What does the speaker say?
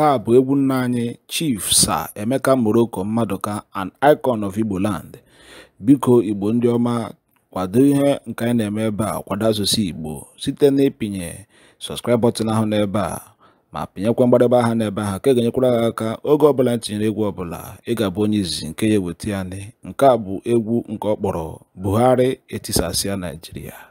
Nke a bụ egwu nna anyị Chief sa Emeka Morocco mmadụka an icon of land Biko Igbo ndị ọma kwado ihe nke anyị na-eme ebe a kwado asụsụ Igbo site na ịpịnye subscribe ahụ n'ebe a ma pịnyekwa mgbadebe aha n'ebe ahụ ka e ga-enyekwara ha aka oge ọbụla tinyere egwu ọbụla ị ga-abụ onye izizi nke ya eweta ya nke a bụ egwu nke ọ kpọrọ Buhari etisasịa Naijiria.